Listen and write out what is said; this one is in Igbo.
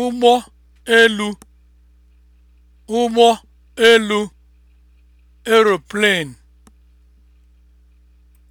ụgbọ elu ụgbọ elu (aeroplane)